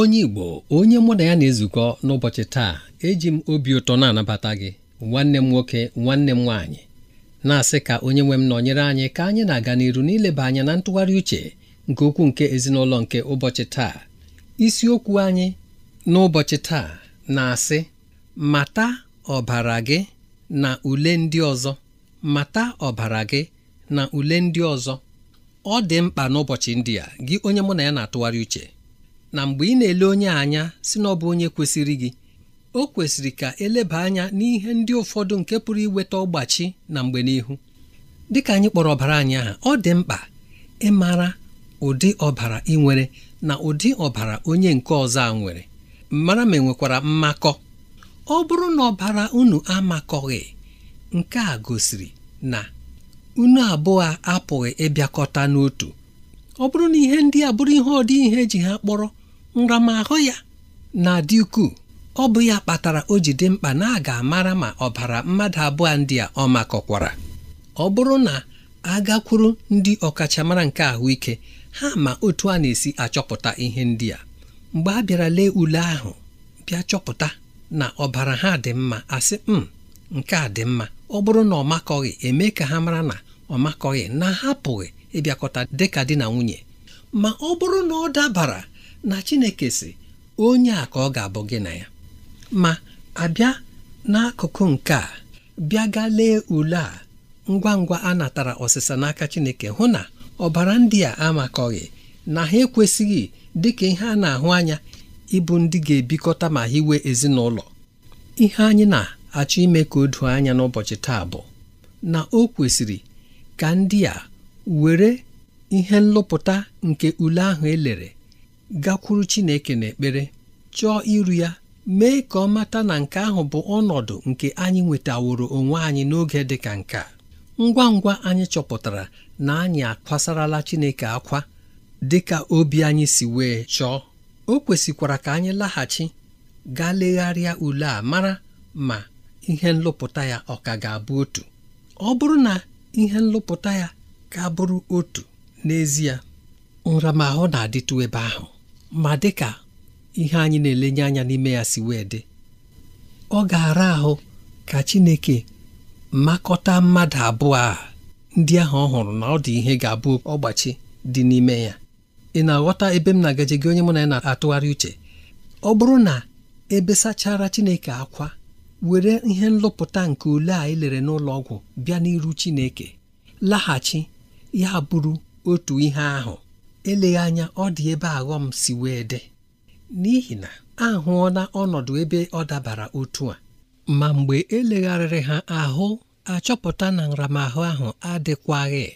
onye Igbo onye mụ na ya na-ezukọ n'ụbọchị taa eji m obi ụtọ na-anabata gị nwanne m nwoke nwanne m nwaanyị na-asị ka onye nwe m nọnyere anyị ka anyị na-aga n'iru n'ileba anya na ntụgharị uche nke okwu nke ezinụlọ nke ụbọchị taa isiokwu anyị n'ụbọchị taa na-asị mata ọbara gị na ule ndị ọzọ mata ọbara gị na ule ndị ọzọ ọ dị mkpa n'ụbọchị ndị a gị onye mụ na ya na-atụgharị uche na mgbe ị na-ele onye anya si na ọ bụ onye kwesịrị gị o kwesịrị ka eleba anya n'ihe ndị ụfọdụ nke pụrụ iweta ọgbachi na mgbe n'ihu dịka anyị kpọrọ ọbara anyị aha ọ dị mkpa ịmara ụdị ọbara ị nwere na ụdị ọbara onye nke ọzọ a nwere mara ma enwekwara mmakọ ọ bụrụ na ọbara unu amakọghị nke a gosiri na unu abụọ apụghị ịbịakọta n'otu ọ bụrụ na ihe ndị a bụrụ ihe ọdị ihe ji ha kpọrọ nramahụ ya na-adị ukwuu ọ bụ ya kpatara o ji dị mkpa na a ga-amara ma ọbara mmadụ abụọ ndị a ọ makọkwara ọ bụrụ na agakwuru ndị ọkachamara nke ahụike ha ma otu a na-esi achọpụta ihe ndị a mgbe a bịara lee ule ahụ bịa chọpụta na ọbara ha dị mma asị m hmm, nke a dị mma ọ bụrụ na ọ makọghị eme ka ha mara na ọ makọghị na hapụghị ịbịakọta dịka di na nwunye ma ọ bụrụ na ọ dabara na Chineke si onye a ka ọ ga-abụ gị na ya ma abịa n'akụkụ nke a bịa ga lee ule a ngwa ngwa a natara ọsịsa n'aka Chineke hụ na ọbara ndị a amakọghị na ha ekwesịghị dịka ihe a na-ahụ anya ịbụ ndị ga-ebikọta ma hiwe ezinụlọ ihe anyị na-achọ ime ka o doo anya n'ụbọchị taa bụ na o kwesịrị ka ndị a were ihe nlụpụta nke ule ahụ elere gakwuru Chineke n'ekpere chọọ iru ya mee ka ọ mata na nke ahụ bụ ọnọdụ nke anyị nwetaworo onwe anyị n'oge dị ka nke a. ngwa ngwa anyị chọpụtara na anyị akwasarala Chineke akwa dị ka obi anyị si wee chọọ o kwesịkwara ka anyị laghachi gaa legharịa ule a mara ma ihe nlụpụta ya ọ ka ga-abụ otu ọ bụrụ na ihe nlụpụta ya ka bụrụ otu n'ezie nramahụ na-adịtụ ebe ahụ ma dịka ihe anyị na-elenye anya n'ime ya si wee dị ọ ga-ara ahụ ka Chineke makọta mmadụ abụọ a ndị ahụ ọ hụrụ na ọ dị ihe ga-abụ ọgbachi dị n'ime ya ị na-aghọta ebe m na-agaje gị onye mụ na ya na-atụgharị uche ọ bụrụ na ebe sachara Chineke akwa were ihe nlụpụta nke ule a elere n'ụlọ ọgwụ bịa n'iru Chineke laghachi ya bụrụ otu ihe ahụ eleghị anya ọ dị ebe aghọm si wee dị n'ihi na ahụọla ọnọdụ ebe ọ dabara otu a ma mgbe elegharịrị ha ahụ achọpụta na nramahụ ahụ adịkwaghị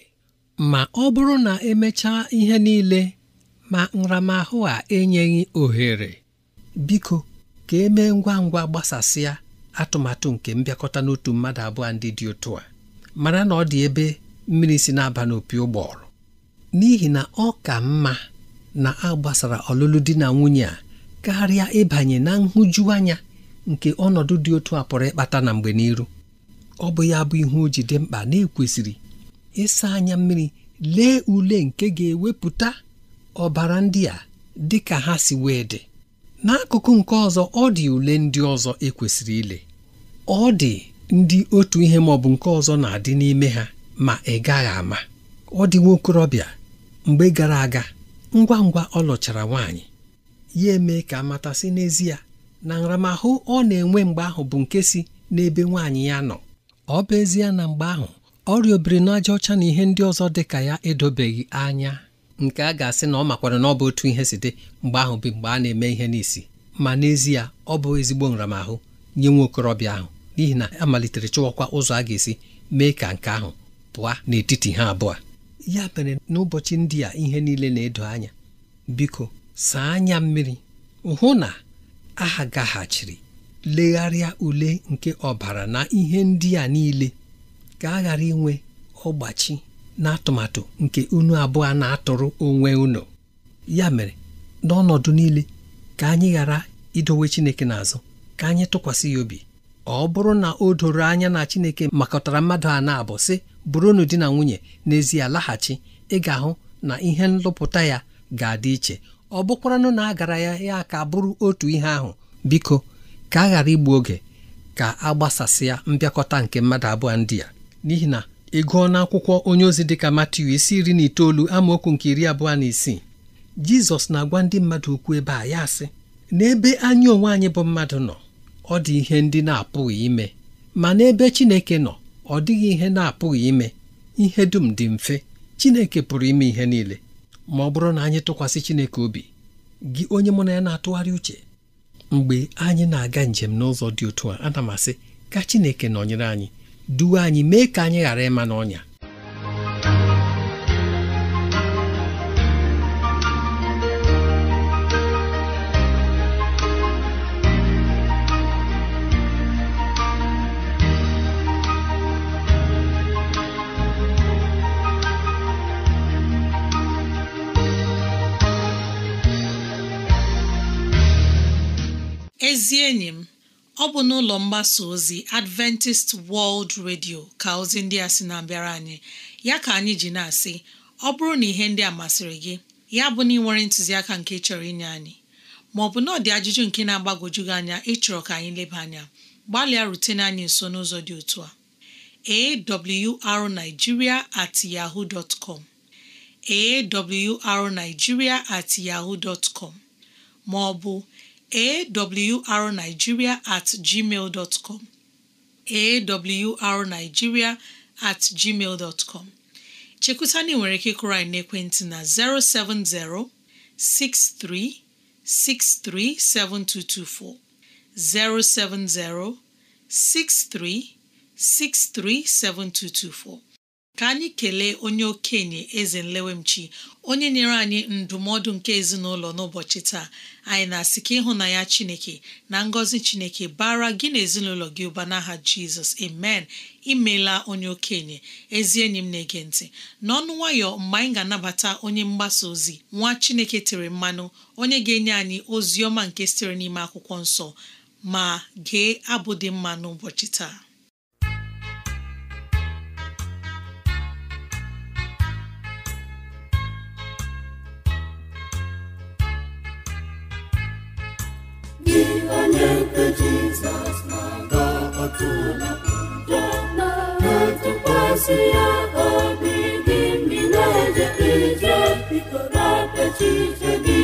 ma ọ bụrụ na emechaa ihe niile ma nramahụ a enyeghị ohere biko ka emee ngwa ngwa gbasasịa atụmatụ nke mbịakọta n'otu mmadụ abụọ ndị dị otu a mara na ọ dị ebe mmiri si na-aba n'opi ụgbọrọ n'ihi na ọ ka mma na a gbasara ọlụlụ di na nwunye a karịa ịbanye na nhụjuanya nke ọnọdụ dị otu a pụrụ ịkpata na mgbe n'iru ọ bụ ya bụ ihe o ji dị mkpa na-ekwesịrị ịsa anya mmiri lee ule nke ga-ewepụta ọbara ndị a dị ka ha si wee dị n'akụkụ nke ọzọ ọ dị ule ndị ọzọ ekwesịrị ile ọ dị ndị otu ihe ma ọ bụ nke ọzọ na-adị n'ime ha ma ị gaghị ama ọ dị nwa okorobịa mgbe gara aga ngwa ngwa ọ lụchara nwaanyị ya eme ka amata si n'ezie na nramahụ ọ na-enwe mgbe ahụ bụ nke si n'ebe nwaanyị ya nọ ọ bụ ezie na mgbe ahụ ọrịa obirinaja ọcha na ihe ndị ọzọ dị ka ya edobeghị anya nke a ga-asị na ọ makwara na ọ bụ otu ihe si dị mgbe ahụ bụ mgbe a na-eme ihe n'isi ma n'ezie ọ bụ ezigbo nramahụ nye nwa okorobịa ahụ n'ihi na a malitere chọwakwa ụzọ a ga-esi mee ka nke ahụ pụa n'etiti ha abụọ ya mere n'ụbọchị ndị a ihe niile na-edo anya biko saa anya mmiri hụ na aha gaghachiri legharịa ule nke ọbara na ihe ndị a niile ka a ghara inwe ọgbachi na atụmatụ nke unu abụọ na-atụrụ onwe unu ya mere n'ọnọdụ niile ka anyị ghara idowe Chineke n'azụ ka anyị tụkwasị ya obi ọ bụrụ na o doro anya na Chineke makọtara mmadụ a na-abụ sị bụrụnụ di na nwunye n'ezie laghachi ị ga-ahụ na ihe nlụpụta ya ga-adị iche ọ bụkwaranụ na a gara ya ya ka bụrụ otu ihe ahụ biko ka a ghara igbu oge ka a gbasasịa mbịakọta nke mmadụ abụọ ndị a n'ihi na ị gụọ akwụkwọ onye ozi dịka Matiu isi iri na itoolu amaokwu nke iri abụọ na isii Jizọs na-agwa ndị mmadụ okwu ebe a ya sị n'ebe anyị onwe anyị bụ mmadụ nọ ọ dị ihe ndị na-apụghị ime ma n'ebe Chineke nọ ọ dịghị ihe na-apụghị ime ihe dum dị mfe Chineke pụrụ ime ihe niile ma ọ bụrụ na anyị tụkwasị Chineke obi gị onye mụ na ya na-atụgharị uche mgbe anyị na-aga njem n'ụzọ dị otu a ana m asị ka Chineke nọnyere anyị duwe anyị mee ka anyị ghara ịma n'ọnya ezi enyi m ọ bụ n'ụlọ mgbasa ozi Adventist World Radio ka ozi ndị a sị na-abịara anyị ya ka anyị ji na-asị ọ bụrụ na ihe ndị a masịrị gị ya bụ na ị nwere ntụziaka nke chọrọ inye anyị ma ọ bụ na ọdị ajụjụ nke na-agbagwoju gị anya ịchọrọ ka anyị leba anya gbalịa rutene anyị nso n'ụzọ dị otu a awrnigeria at yaho com awrnigeria at yaho dot com ma ọ bụ awrnigeria at gmail dot com awrnigeria at gmail dot com chekwutana ị nwere ike ịkụrụ anyị n'ekwentị na 070 6363 7224 070 6363 7224 ka anyị kelee onye okenye eze nlewemchi onye nyere anyị ndụmọdụ nke ezinụlọ n'ụbọchị taa anyị na-asị ka ịhụnanya chineke na ngọzi chineke bara gị na ezinụlọ gị ụba n'aha jizọs amen imela onye okenye ezi enyi m na-ege ntị n'ọnụ nwayọ mgbe anyị ga-anabata onye mgbasa ozi nwa chineke tere mmanụ onye ga-enye anyị ozi ọma nke sitere n'ime akwụkwọ nsọ ma gee abụ dị mma n'ụbọchị taa gosi ya obi gị mmiri na-eje ije gi.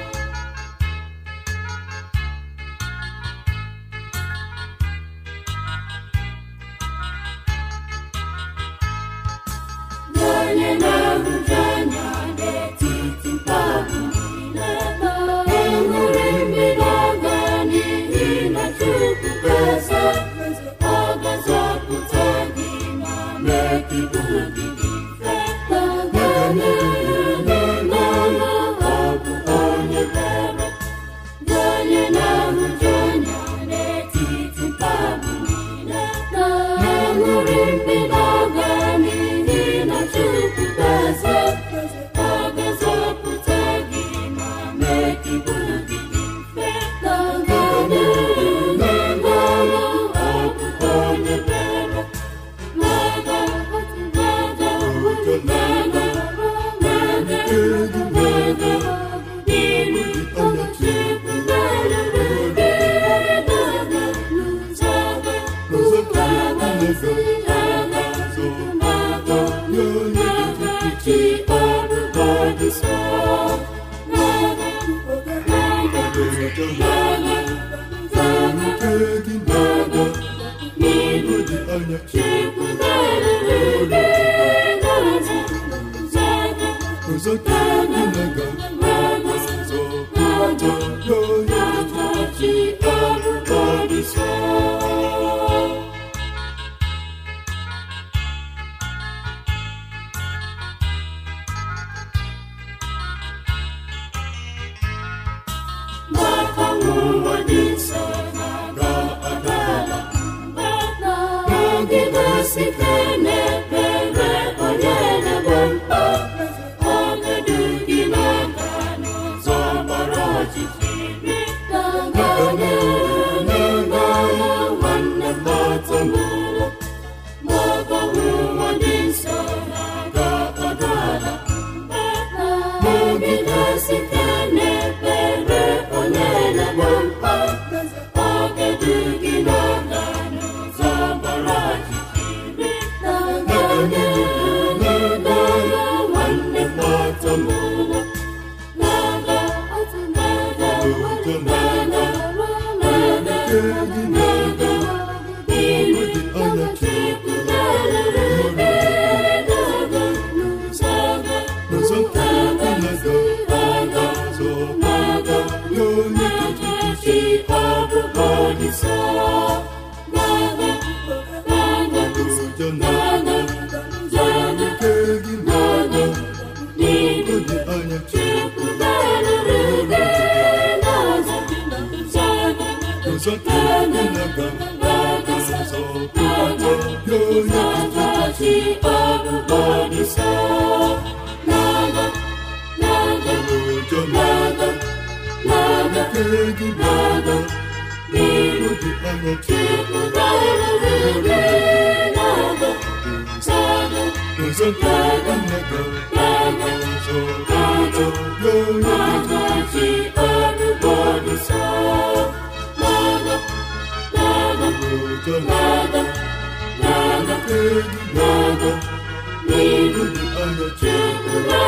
Cristo. Dieu. N'iru dị anya chekwa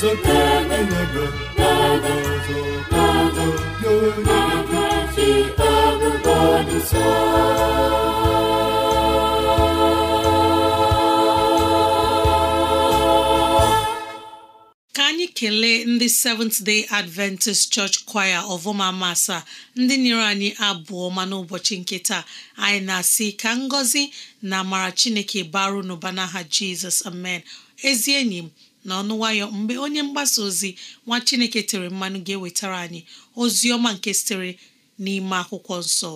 ka anyị kelee ndị Seventh Day Adventist Church Choir ọvụma masa ndị nyere anyị abụọ mana n'ụbọchị nke taa anyị na-asị ka ngọzi na amara Chineke baru n'ụba n'aha Jizọs amen ezi enyi m na ọnụ nwayọ mgbe onye mgbasa ozi nwa chineke tere mmanụ ga-ewetara anyị ozi ọma nke sitere n'ime akwụkwọ nsọ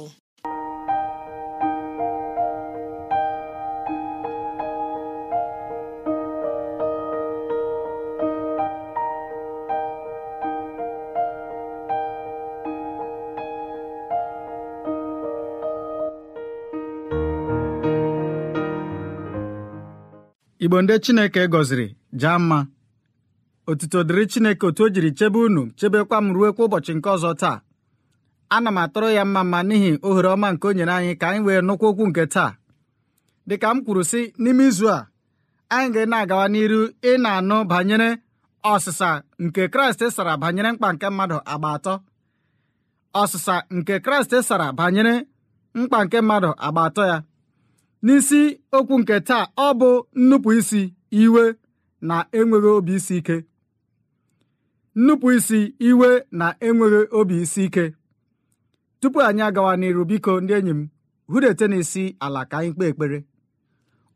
igbo ndị chineke gọziri jaa mma otuto dịrị chineke otu o jiri chebe unu chebekwa m ruo kwa ụbọchị nke ọzọ taa ana m atụrụ ya mma mma n'ihi ohere ọma nke o nyere anyị ka anyị wee nụkwa okwu nke taa dịka m kwuru sị n'ime izu a anyị ga na-agawa n'iru ị na-anụ banyere ọsịsa nke kraịst e sara banyere mkpa nke mmadụ agba atọ ọsịsa nke kraịst e sara banyere mkpa nke mmadụ agba atọ ya n'isi okwu nke taa ọ bụ nnupụ isi iwe na enweghị obi isi ike nnupụ isi iwe na enweghị obi isi ike tupu anyị agawa n'iru biko ndị enyi m hụdete n'isi ala ka anyị kpee ekpere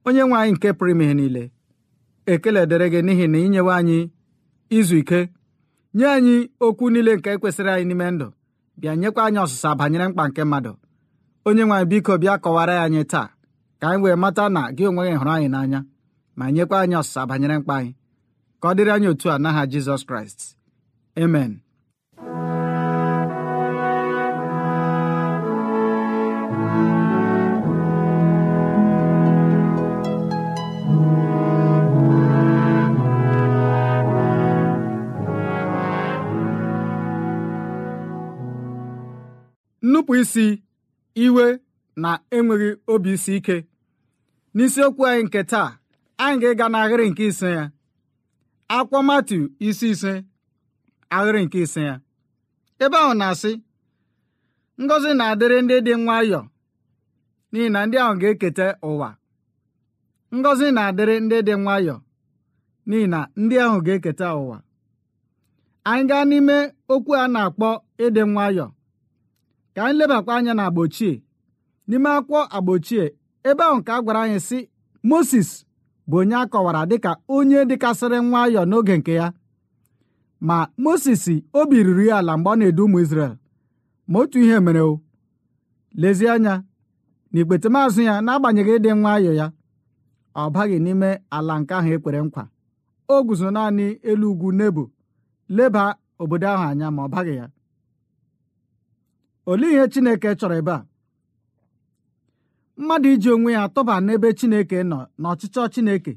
onye nwe anyị nke pụrụ ime niile ekele dịrị gị n'ihi na inyewe anyị izu ike nye anyị okwu niile nke kwesịrị anyị n'ime ndụ bịa nyekwa anyị ọsụsa banyere mkpa nke mmadụ onye nwe anyị biko bịa kọwara ya anyị taa ka anyị wee mata na gị onwe gị hụrụ anyị n'anya ma nyekwa anyị ọsịsa banyere mkpa anyị ka ọ dịrị anyị otu a n'aha Jizọs Kraịst amen nnupụ isi iwe na enweghị obi isi ike n'isiokwu anyị nke taa anyị ga-ịga n'ahịrị nke ise ya akwụkwọ isi ise ahịrị nke ise ya ebe ahụ na-asị ngọzi na-adịrị ndị dị nwayọọ n'ihi na ndị ahụ ga-eketa ụwa na-adịrị ndị dị nwayọọ n'ihi ndị ahụ ga-eketa ụwa anyị gaa n'ime okwu a na-akpọ ịdị nwayọ ka anyị lebakwa anya na agbochie n'ime akwụkwọ agbochie ebe ahụ ka a gwara anyị sị Moses bụ onye akọwara kọwara dịka onye dịkasịrị nwayọọ n'oge nke ya ma Moses obi ruru ya ala mgbe ọ na-edu ụmụ Izrel ma otu ihe mere o lezie anya na ikpete maazụ ya na-agbanyeghị ịdị nwayọọ ya ọ baghị n'ime ala nke ahụ ekpere nkwa o guzo naanị elu ugwu Nebo leba obodo ahụ anya ma ọ baghị ya olee ihe Chineke chọrọ ebe a mmadụ iji onwe ya tụba n'ebe chineke nọ na chineke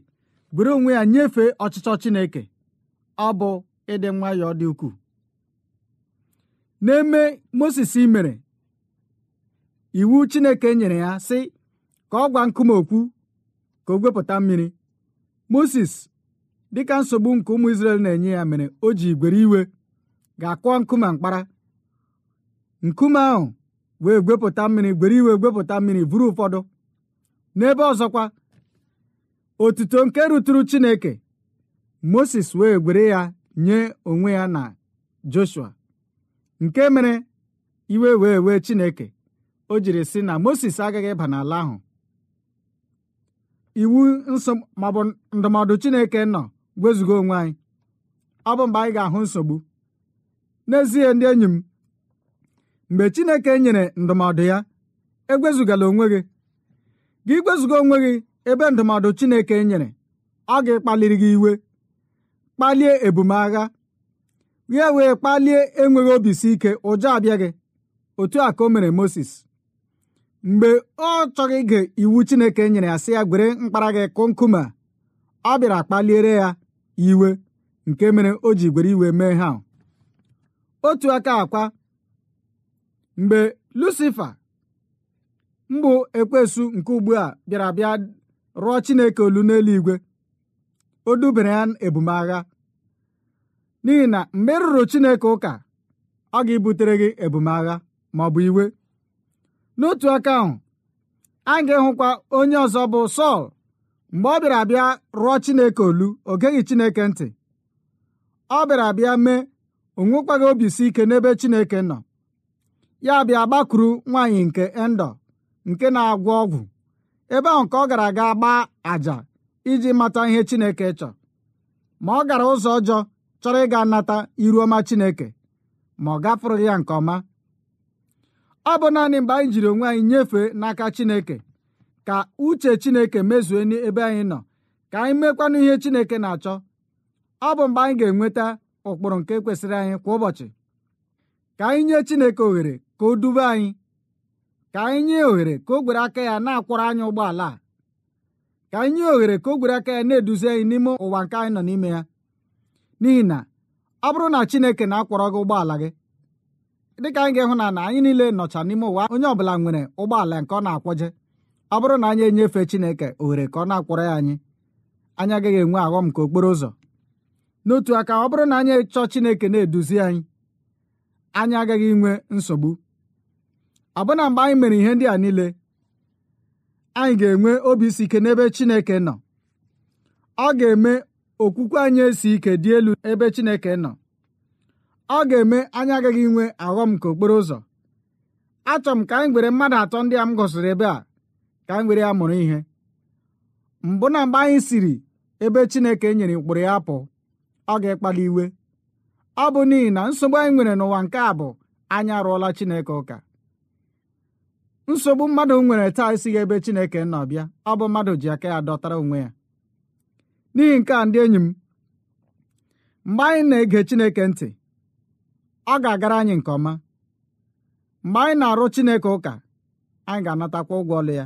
buru onwe ya nyefee ọchịchọ chineke ọ bụ ịdị nwayọọ dị ukwuu n'eme moses imere, iwu chineke nyere ya sị ka ọ gwa nkume okwu ka o gwepụta mmiri moses dịka nsogbu nke ụmụ na-enye ya mere o ji igwere iwe ga-akụọ nkume mkpara nkume ahụ wee gwepụta mmiri gwere iwe gwepụta mmiri buru ụfọdụ n'ebe ọzọkwa otuto nke rụtụrụ chineke moses wee gwere ya nye onwe ya na joshua nke mere iwe wee wee chineke o jiri sị na moses agaghị ịba n'ala ahụ iwu ma maọbụ ndụmọdụ chineke nọ gwezugo onwe anyị ọ bụ mgbe anyị ga-ahụ nsogbu n'ezie ndị enyi m mgbe Chineke nyere ndụmọdụ ya egwezugala onwe gị gị gwezuga onwe gị ebe ndụmọdụ Chineke nyere ọ gị kpaliri gị iwe kpalie ebumagha ya wee kpalie enweghị obi si ike ụjọ abịa gị otu a ka o mere Mozis mgbe ọ chọghị ige iwu Chineke nyere ya sị ya gwere mkpara gị kụ nkume ọ bịara kpaliere ya iwe nke mere o ji gwere iwe mee ha otu aka akwa mgbe lucifa mbụ ekwesu nke ugbu a bịara bịa rụọ chineke olu n'eluigwe o dubere ya ebumagha n'ihi na mgbe ị e rụrụ chineke ụka ọ ga-ebutere gị ebumagha ma ọ bụ iwe n'otu aka ahụ a ga-ehụkwa onye ọzọ bụ sọl mgbe ọ bịara abịa rụọ chineke olu o geghị chineke ntị ọ bịara abịa mee o nwekwaghị obi ike n'ebe chineke nọ ya bịa gbakwuru nwaanyị nke endo nke na-agwọ ọgwụ ebe ahụ ka ọ gara aga gbaa àjà iji mata ihe Chineke chọrọ ma ọ gara ụzọ ọjọọ chọrọ ịga nata iru ọma Chineke ma ọ gafụrụ ya nke ọma ọ bụ naanị mgbe anyị jiri onwe anyị nyefee n'aka Chineke ka uche Chineke mezue n'ebe anyị nọ ka anyị mekwanụ ihe Chineke na-achọ ọ bụ mgbe anyị ga-enweta ụkpụrụ nke kwesịrị anyị kwa ụbọchị ka anyị nye chineke ohere ka o dube anyị ka anyị nye ohere ka o gwere aka ya na-akwọrọ anyị ụgbọala a ka anyị nye ohere ka o gwere aka ya na-eduzi anyị n'ime ụwa nke anyị nọ n'ime ya n'ihi na ọ bụrụ na chineke na-akwọrọ gị ụgbọala gị dịka anyị ga-ehụ na na anyị niile nọcha n'ime ụwa onye ọbụla nwere ụgbọala nke ọ na-akwọje ọ bụrụ na anyị enyefe chineke ohere ka ọ na-akwọrọ ya anyị anyị agaghị enwe aghọm nke okporo ụzọ n'otu aka ọ bụrụ na anyị chọọ chineke na-eduzi anyị anyị agaghị inwe nsogbu ọbụna mgbe anyị mere ihe ndị a niile anyị ga-enwe obi isi ike n'ebe Chineke nọ ọ ga-eme okwukwe anyị esi ike dị elu ebe Chineke nọ ọ ga-eme anyị agaghị inwe aghọm nke okporo ụzọ achọ m ka anyị gwere mmadụ atọ ndị a m gosiri ebe a ka anyị gwere ya mụrụ ihe mbụ na mgbe anyị siri ebe Chineke nyere ụkpụrụ ya apụ ọ ga-ekpali iwe ọ bụ n'ihi na nsogbu anyị nwere n'ụwa nke a bụ anyị arụọla Chineke ụka nsogbu mmadụ nwere taa esighị ebe Chineke nọ bịa ọ bụ mmadụ ji aka ya dọtara onwe ya n'ihi nke a ndị enyi m mgbe anyị na-ege Chineke ntị ọ ga-agara anyị nke ọma mgbe anyị na-arụ Chineke ụka anyị ga-anatakwa ụgwọ ọlụ ya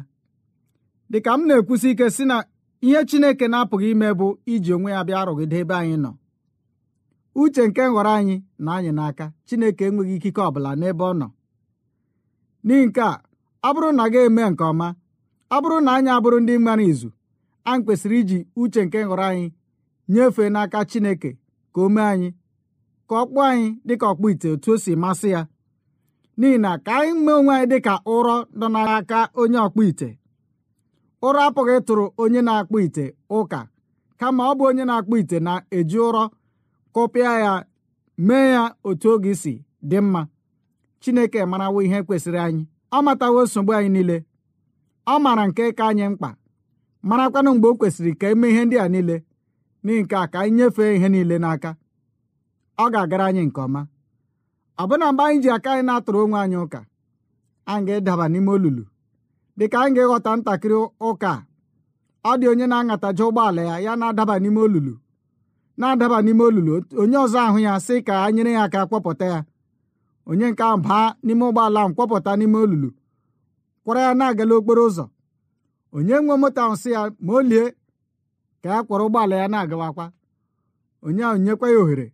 dịka m na-ekwusi ike si na ihe Chineke na-apụghị ime bụ iji onwe ya bịa arụgide ebe anyị nọ uche nke nhọrọ anyị na anyị n'aka chineke enweghị ikike ọbụla n'ebe ọ nọ n'ihi nke a ọ bụrụ na gị eme nke ọma ọ bụrụ na anyị abụrụ ndị mmanụ izu anyị kwesịrị iji uche nke nhọrọ anyị nyefee n'aka chineke ka o mee anyị ka ọ kpụọ anyị dịka ọkpụ ite otu o si masị ya n'ihi na ka anyị mee onwe anyị dịka ụrọ nọ n'aka onye ọkpụ ite ụrọ apụghị tụrụ onye na-akpụ ite ụka kama ọ bụ onye na-akpụ ite na-eji ụrọ kụpịa ya mee ya otu oge si dị mma chineke marawo ihe kwesịrị anyị ọ matawo nsogbu anyị niile ọ maara nke ka anyị mkpa marakwanụ mgbe o kwesịrị ka eme ihe ndị a niile n'ihi nke a ka anyị nyefee ihe niile n'aka ọ ga-agara anyị nke ọma ọbụna mgbe anyị ji aka anyị na-atụrụ onwe anyị ụka anyị ga-edaba n'ime olulu dịka anyị ga-ịghọta ntakịrị ụka ọ dị onye na ụgbọ ụgbọala ya ya na-adaba n'ime olulu na-adaba n'ime olulu onye ọzọ ahụ ya sị ka a nyere ya aka kwọpụta ya onye nke ahụ baa n'ime ụgbọala ahụ kpọpụta n'ime olulu kwọrọ ya na-agala okporo ụzọ onye nwe moto ahụ sị ya ma o lie ka ya kwọrọ ụgbọala ya na-agawakwa onye ahụ nyekwa ya ohere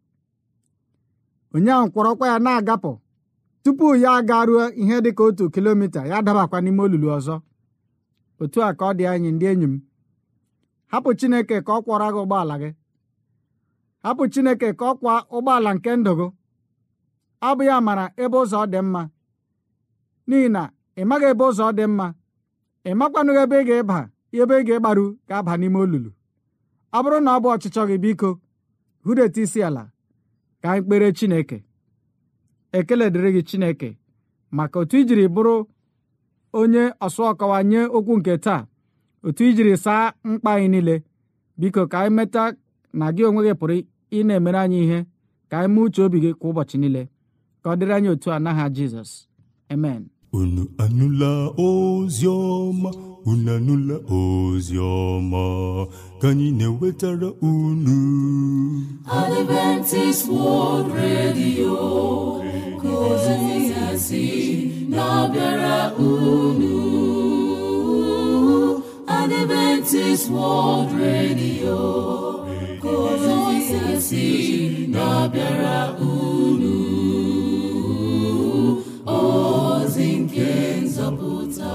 onye ahụ kwọrọkwa ya na-agapụ tupu ya agaruo ihe dị ka otu kilomita ya dabakwa n'ime olulu ọzọ otu a ka ọ dị anyị ndị enyi m hapụ Chineke ka ọ kwọrọ gị ụgbọala gị hapụ chineke ka ọ kwa ụgbọala nke ndụ gị ọ ya mara ebe ụzọ dị mma n'ihi na ị maghị ebe ụzọ dị mma ị makwanụghị ebe ị ga-ịba ebe ị ga-ịgbaru ga-aba n'ime olulu ọ bụrụ na ọ bụ ọchịchọ gị biko hụdeta isi ala ka anyị kpere chineke ekele dịrị gị chineke maka otu ijiri bụrụ onye ọsụ ọkọwa nye okwu nke taa otu ijiri saa mkpa anyị niile biko ka anyị meta na gị onwe gị pụrụ ị na-emere anyị ihe ka anyị mee uche obi gị kwa ụbọchị niile ka ọ dịrị anyị otu a n'aha jizọs amen unu anụla ozi ọma unu anụla ozi ọma ka anyị na-ewetara unu Adventist World Radio ka ozi ya si na-abịara unu Adventist World Radio na-abịara unu ozi nke nzọpụta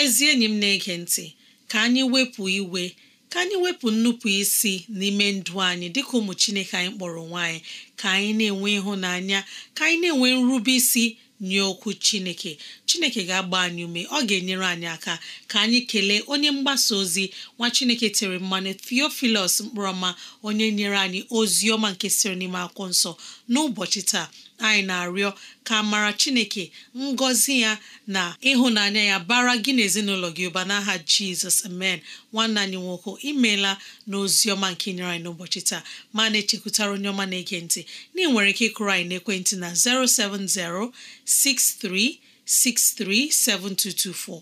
ezi enyi m na-ege ntị ka anyị wepụ iwe ka anyị wepụ nnupụ isi n'ime ndụ anyị dịka ụmụ Chineke anyị kpọrọ nwanyị ka anyị na-enwe ịhụnanya ka anyị na-enwe nrube isi nye okwu chineke chineke ga-agba anyị ume ọ ga-enyere anyị aka ka anyị kelee onye mgbasa ozi nwa chineke tere mmanụ theophilus mkpọrọma onye nyere anyị ozi ọma nke siri n'ime akwụkwọ nsọ n'ụbọchị taa anyị na-arịọ ka mara chineke ngọzi ya na ịhụnanya ya bara gị na ezinụlọ gị ụba n'aha jizọs amen nwanna anyị nwoke imeela na ọma nke nyere anyị n'ụbọchị taa ma na-echekwutara onye ọma na-ege ntị na ị nwere ike ịkụrụ anyị n'ekwentị na 07063637224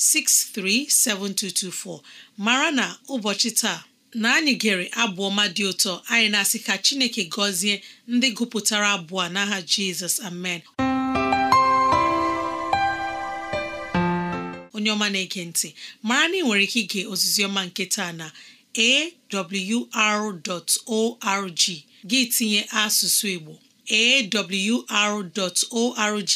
7224, mara na ụbọchị taa na anyị gere abụ ọma dị ụtọ anyị na-asị ka Chineke gọzie ndị gụpụtara abụ a n'aha Jizọs amen onye ọma na-ege ntị mara na ị nwere ike ige ozizioma ọma nke taa na awr.org gị tinye asụsụ Igbo awr.org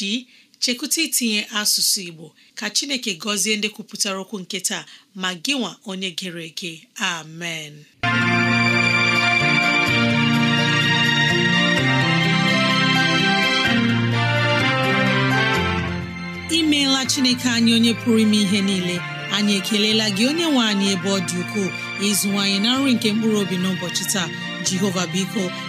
chekwụta itinye asụsụ Igbo ka Chineke gọzie ndị kwupụtara okwu nke taa ma gịnwa nwa onye gere ege amen imeela Chineke anyị onye pụrụ ime ihe niile anyị ekelela gị onye nwe anyị ebe ọ dị ukwuu ịzụwanyị na nri nke mkpụrụ obi n'ụbọchị taa Jehova biko